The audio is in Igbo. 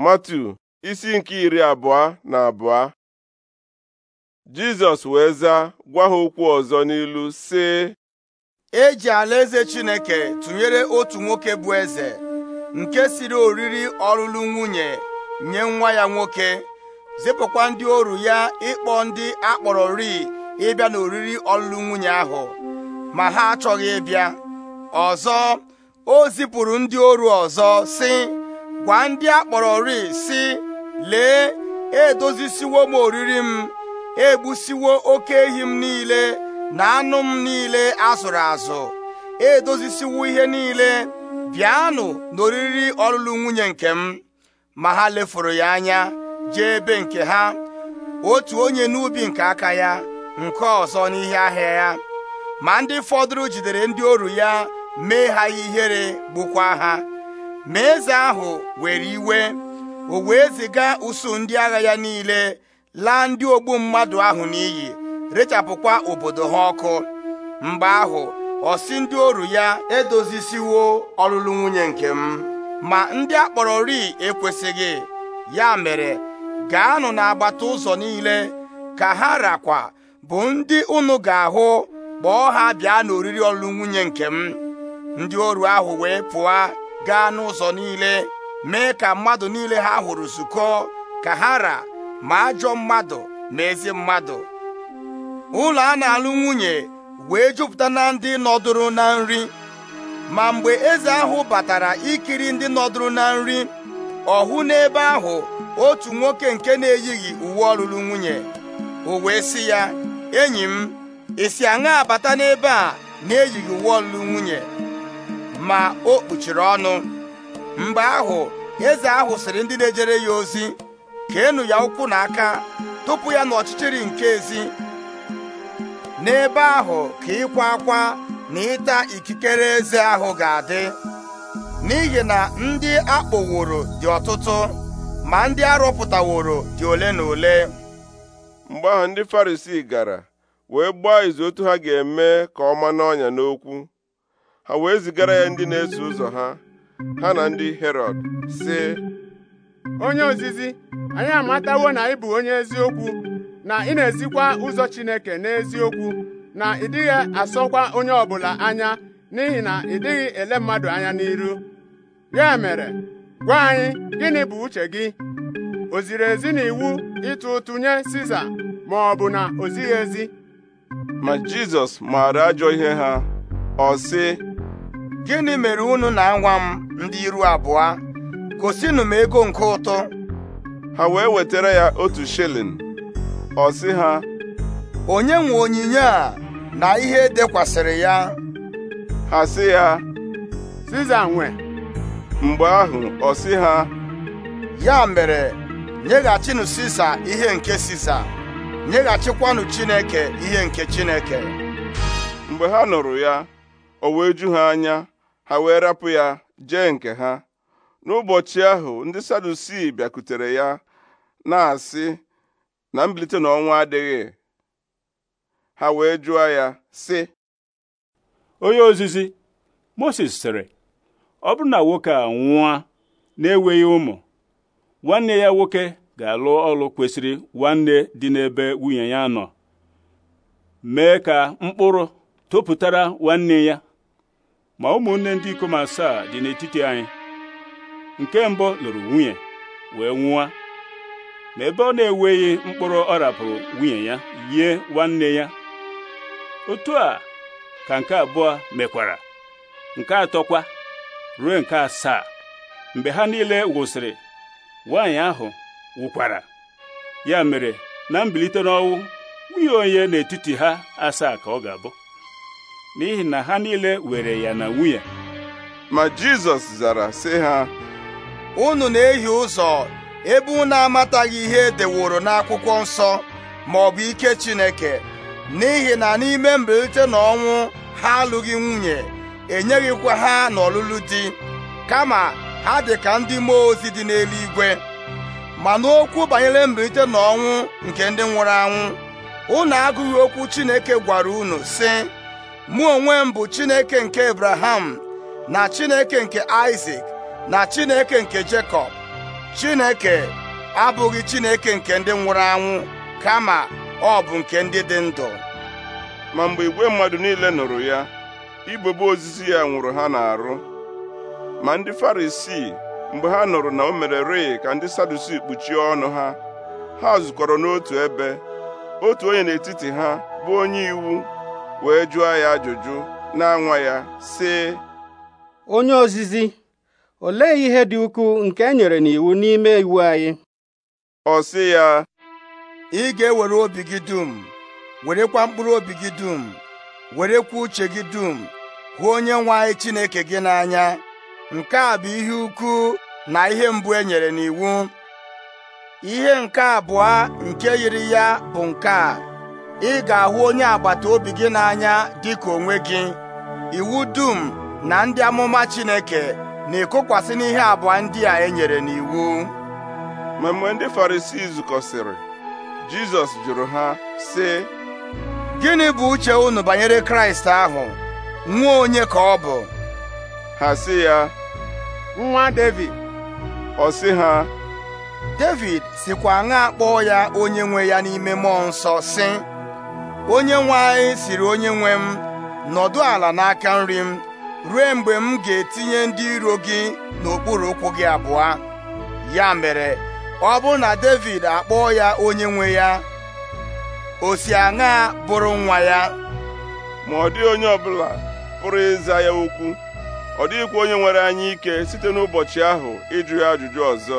Matu isi nke iri abụọ na abụọ Jizọs wee zaa gwa ha okwu ọzọ n'ilu sị e ji alaeze Chineke tụnyere otu nwoke bụ eze nke siri oriri ọlụlụ nwunye nye nwa ya nwoke zipụkwa ndị oru ya ịkpọ ndị akpọrọ ri ịbịa n'oriri ọlụlụ nwunye ahụ ma ha achọghị ịbịa ọzọ o zipụrụ ndị oru ọzọ sị gwa ndị a kpọrọ ri si lee edozisiwo m oriri m egbusiwo oke ehi m niile na anụ m niile azụrụ azụ edozisiwo ihe niile bịanụ n'oriri ọlụlụ nwunye nke m ma ha lefuru ya anya jee ebe nke ha otu onye n'ubi nke aka ya nke ọzọ n'ihe ahịa ya ma ndị fọdụrụ jidere ndị oru ya mee ha ihere gbukwa ha ma eze ahụ were iwe o wee ziga usuu ndị agha ya niile laa ndị ogbu mmadụ ahụ n'iyi rechapụkwa obodo ha ọkụ mgbe ahụ ọsị ndị oru ya edozisiwo ọlụlụ nwunye nke m ma ndị akpọrọ ri ekwesịghị ya mere gaanụ n'agbata ụzọ niile ka ha rakwa bụ ndị unu ga-ahụ kpọọ ha bịa n'oriri ọlụlụ nwunye nke m ndị oru ahụ wee pụọ gaa n'ụzọ niile mee ka mmadụ niile ha hụrụ zukọ ka ha ra ma ajọ mmadụ ma ezi mmadụ ụlọ a na-alụ nwunye wee jupụta na ndị nọdụrụ na nri ma mgbe eze ahụ batara ikiri ndị nọdụrụ na nri ọ hụ n'ebe ahụ otu nwoke nke na-eyighị uwe ọlụlụ nwunye o wee sị ya enyi m isi aṅa abata n'ebe a na-eyighị uwe ọlụlụ nwunye ma o kpuchiri ọnụ mgbe ahụ eze ahụ sịrị ndị na-ejere ya ozi ka keenụ ya ụkwụ n'aka tupu ya n'ọchịchịrị nke ezi n'ebe ahụ ka ịkwa akwa na ịta ikikere eze ahụ ga-adị n'ihi na ndị akpọworo dị ọtụtụ ma ndị arọpụtaworo dị ole na ole mgbe ahụ ndị Farisii gara wee gbaa izu otu ha ga-eme ka ọ ma n'ọnya n'okwu ha wee zigara ya ndị na-eso ụzọ ha ha na ndị Herọd sị onye ozizi anyị amatawo na ị bụ onye eziokwu na ị na-ezikwa ụzọ Chineke n'eziokwu na ị dịghị asọkwa onye ọbụla anya n'ihi na ị dịghị ele mmadụ anya n'iru ya mere gwa anyị gịnị bụ uche gị o ziri ezi na iwu ịtụ ụtụ nye Siza ma ọ bụ na o zighị ezi ma Jizọs maara ajọ ihe ha ọ sị gịnị mere unu na nwa m ndị iru abụọ gosinụ m ego nke ụtụ ha wee wetara ya otu shilling ọ sị ha onye nwe onyinye a na ihe dekwasịrị ya ha sị ya Siza nwe mgbe ahụ ọ sị ha ya mere nyeghachinụ Sisa ihe nke Sisa nyeghachikwanụ Chineke ihe nke Chineke mgbe ha nụrụ ya o wee ju ha anya a wee rapụ ya jee nke ha n'ụbọchị ahụ ndị sadusi bịakutere ya na-asị na mbilite n'ọnwa adịghị ha wee jụọ ya sị onye ozizi Moses sịrị ọ bụrụ na nwoke a nwụwa na-enweghị ụmụ nwanne ya nwoke ga-alụ ọlụ kwesịrị nwanne dị n'ebe nwunye ya nọ mee ka mkpụrụ topụtara nwanne ya ma ụmụnne ndị ikom asaa dị n'etiti anyị nke mbụ lụrụ nwunye wee nwụọ ma ebe ọ na eweghị mkpụrụ ọ rapụrụ nwunye ya yie nwanne ya otu a ka nke abụọ mekwara nke atọkwa ruo nke asaa mgbe ha niile wụsịrị nwaanyị ahụ wụkwara ya mere na mbilite n'ọnwụ nwunye onye n'etiti ha asaa ka ọ ga-abụ n'ihi na ha niile were ya na nwunye ma Jizọs zara sị ha unu na-ehi ụzọ ebe unu amataghị ihe edeworo n'akwụkwọ nsọ ma ọ bụ ike Chineke n'ihi na n'ime mbilite na ọnwụ ha alụghị nwunye enyeghịkwa ha n'ọlụlụ di kama ha dị ka ndị mmụọ ozi dị n'eluigwe ma n'okwu banyere mbilite na ọnwụ nke ndị nwụrụ anwụ unu agụghị okwu Chineke gwara unu sị mụ onwe m bụ Chineke nke Abraham na Chineke nke Isaac na Chineke nke Jekọb Chineke abụghị Chineke nke ndị nwụrụ anwụ kama ọ bụ nke ndị dị ndụ ma mgbe igwe mmadụ niile nụrụ ya igbebe ozizi ya nwụrụ ha na-arụ. ma ndị Farisii mgbe ha nụrụ na o mere rịị ka ndị Sadusi kpuchie ọnụ ha ha zukọrọ n'otu ebe otu onye n'etiti ha bụ onye iwu wee jụọ ya ajụjụ na nwa ya sị onye ozizi olee ihe dị ukwuu nke e nyere n'iwu n'ime iwu anyị ọ si ya ị ga-ewere obi gị dum werekwa mkpụrụ obi gị dum werekwa uche gị dum hụ onye nwe anyị Chineke gị n'anya nke a bụ ihe ukwu na ihe mbụ e nyere n'iwu ihe nke abụọ nke yiri ya bụ nke a ị ga-ahụ onye agbata obi gị n'anya dị ka onwe gị iwu dum na ndị amụma Chineke na-ekokwasị n'ihe abụọ ndị a e nyere n'iwu ma mgbe ndị Farisii zukọsịrị Jizọs jụrụ ha sị gịnị bụ uche unu banyere Kraịst ahụ nwa onye ka ọ bụ ha sị ya nwa Devid ọ sị ha Devid sikwa aṅa akpọọ ya onye nwe ya n'ime mmụọ nsọ sị onye nwe anyị siri onye nwe m nọdụ ala n'aka nri m ruo mgbe m ga-etinye ndị iro gị n'okpuru ụkwụ gị abụọ ya mere ọ bụ na David akpọọ ya onye nwe ya o si aṅa bụrụ nwa ya ma ọ dị onye ọbụla pụrụ ịza ya okwu ọ dịghịkwa onye nwere anyị ike site n'ụbọchị ahụ ịjụ ya ajụjụ ọzọ